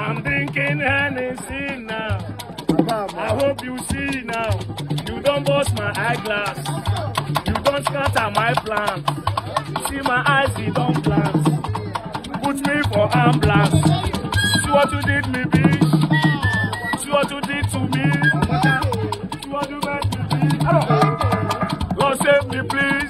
I'm drinking Hennessy now. I hope you see now. You don't bust my eyeglass. You don't scatter my plans. See my eyes, they don't glance. Put me for ambulance. See what you did me, bitch. See what you did to me. See what you made me be. Lord, save me, please.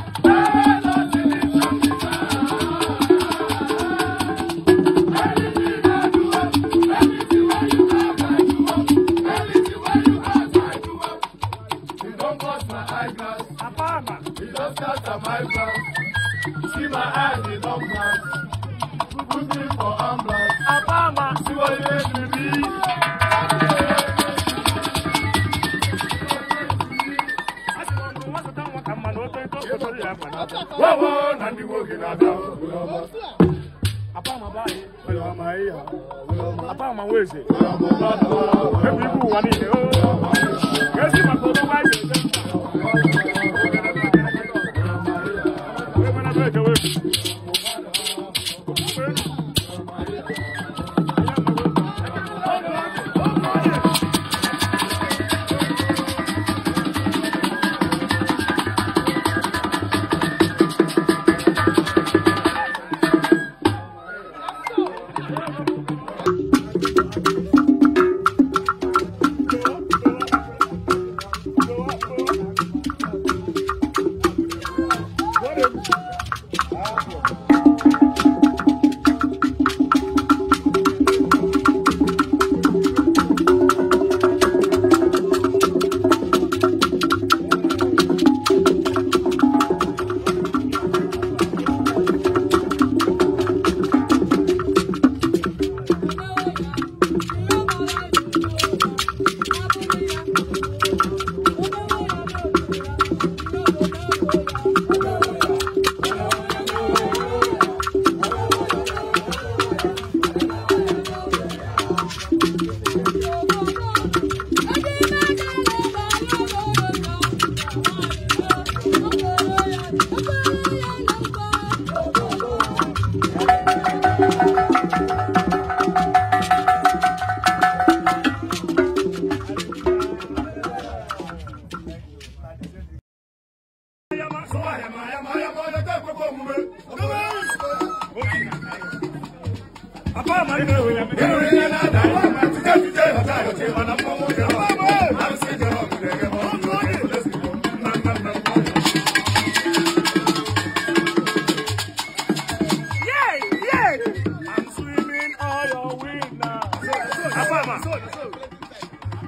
don't cut my Apama, He don scatter my plans. See my eyes, they don't blast. Put me for Apama, See what he make me be. Wawo na ndị nwoke na-ada Apama weze Ebe ibu ụwa niile yóò sì mọ̀ pé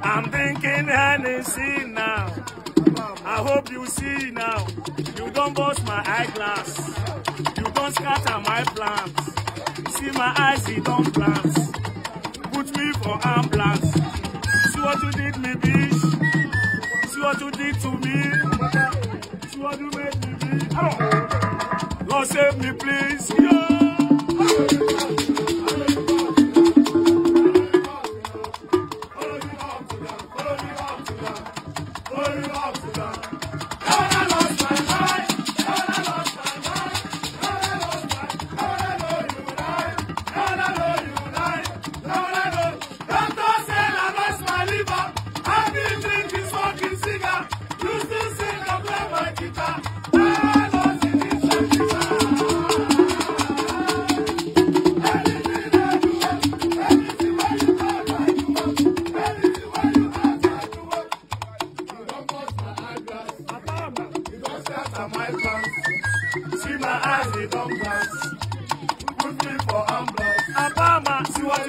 I'm thinking Hennessy now. I hope you see now. You don't bust my eyeglass. You don't scatter my plans see my eyes, he don't plant. Put me for ambulance. See what you did me, bitch. See what you did to me. See what you made me be. Lord, save me, please. Yeah.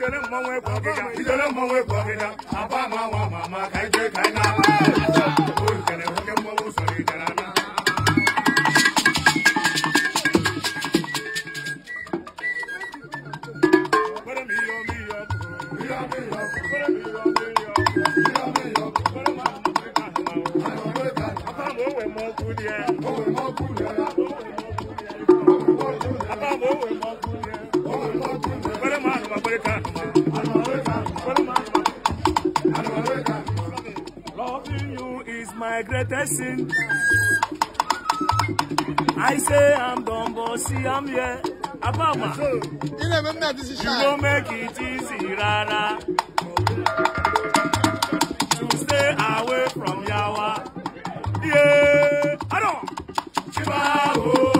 Ijele mmanwụ egwu ọgịga, ijele mmanwụ egwu ọgịga, apa ama nwa ma ama ka ije ka ị na-ama. Oyi kere nwoke mmanwụ sọrọ ijele ana. Kwere m ihe ọmị ihe ọkụ. Ihe ọmị ihe ọkụ. Kwere m ihe ọmị ihe ọkụ. Ihe ọmị ihe ọkụ. Kwere m ahụ. Apa ma o wee ma ọkụ dị ya. O wee ma ọkụ dị ya. Loving you is my greatest sin. I say I'm dumb, but see I'm here. Abama, you don't make it easy, Rara. To stay away from Yawa. Yeah, I don't. Chibaho. Oh.